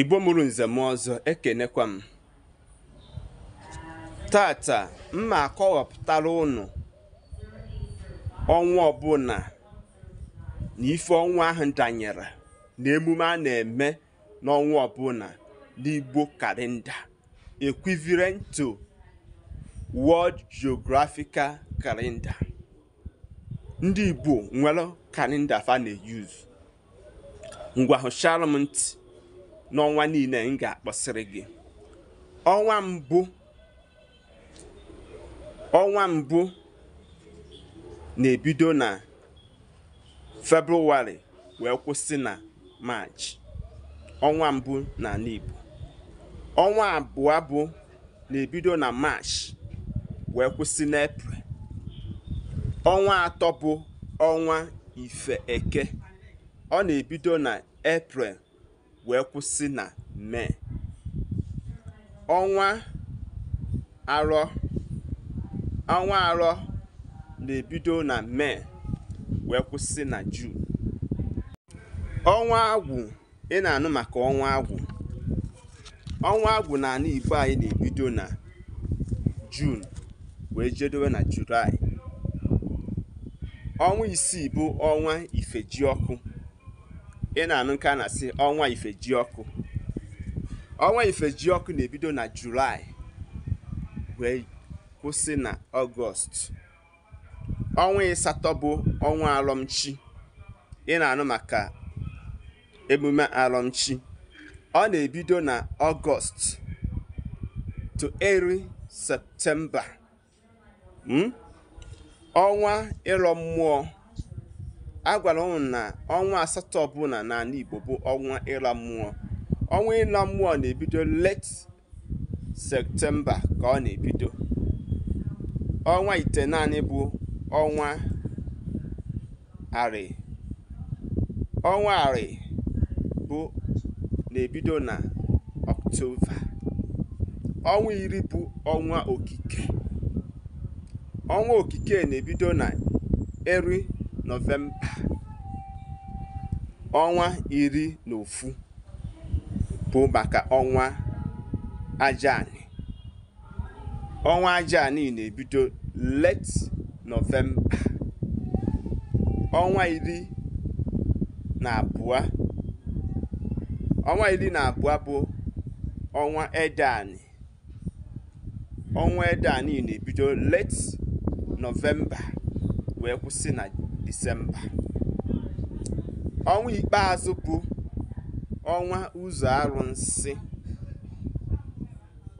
igbo mụrụ nzem m ọzọ ekenekwa m tata mma akọwapụtara ụnụ ọnwa ọbụla na ife ọnwa ahụ danyere na emume a na-eme n'ọnwa ọbụla n'igbo kalenda equivalent to World Geographical ndị igbo nwere kalenda fa na-eyuzu ngwa hụchara m ntị n'ọnwa niile m ga-akpọsịrị gị ọnwa mbụ ọnwa mbụ na-ebido na februarị wee kwụsị na maachị ọnwa mbụ na Igbo ọnwa abụọ bụ na-ebido na maachị wee kwụsị eprel ọnwa atọ bụ ọnwa ife eke ọ na-ebido na eprel wee kwụsị na Mee. Ọnwa arọ ọnwa arọ na-ebido na Mee wee kwụsị na juun Ọnwa agwụ ị na-anụ maka ọnwa agwụ. Ọnwa agwụ na anụ Igbo anyị na-ebido na Juun wee jedowe na Julaị. Ọnwa isii bụ ọnwa ọkụ ị na-anụ nke a na-asị ọnwa ọkụ ọnwa ọkụ na-ebido na julaị wee kwụsị na ọgọst ọnwa ịsatọ bụ ọnwa alọmchi ị na-anụ maka emume alọmchi ọ na-ebido na ọgọst to eri septemba hmm? ọnwa ịlọ mmụọ a gwara na ọnwa asatọ ọbụla n'ala Igbo bụ ọnwa ịla mmụọ ọnwa ịla mmụọ na-ebido let septemba ka ọ na-ebido ọnwa ite naanị bụ ọnwa arị ọnwa arị bụ na-ebido na ọktoba ọnwa iri bụ ọnwa okike ọnwa okike na-ebido na eri Nọvemba ọnwa iri na ofu bụ maka ọnwa aja Ọnwa aja na-ebido late Nọvemba. Ọnwa iri na abụọ ọnwa iri na abụọ bụ ọnwa edani Ọnwa edani na-ebido late Nọvemba wee kwụsị na Disemba. Ọnwa ikpeazụ bụ ọnwa ụzọ arụsị.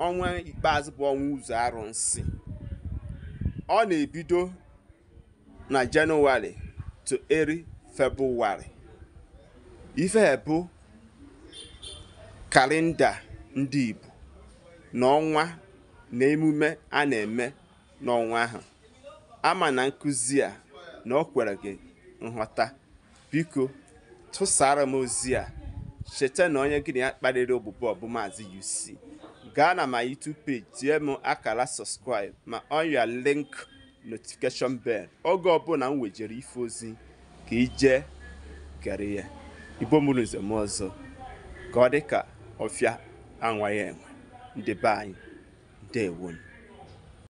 Ọnwa ikpeazụ bụ ọnwa ụzọ arụsị. Ọ na-ebido na Jenụwarị to eri Febụwarị. Ife bụ kalenda ndị Igbo na ọnwa na emume a na-eme n'ọnwa ahụ. Ama na nkụzi a na ọ kwere gị nghọta biko tụsara m ozi a cheta na onye gị na ya kparịrị obubo ọbụ UC gaa na ma YouTube page tie m akara subscribe ma ọnya link notification bel oge ọbụla m wejere ife ozi ka ije gere ya igbo mụrụ nzem ọzọ ka ọ dị ka ọfịa anwaghị enwe anyị ndewonu